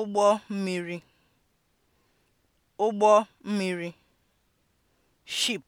ụgbọ mmiri ụgbọ mmiri (ship)